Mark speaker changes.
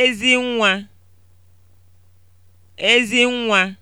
Speaker 1: Ezi nwa. ezi nwa.